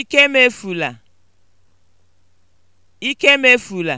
ikemefula ikemefula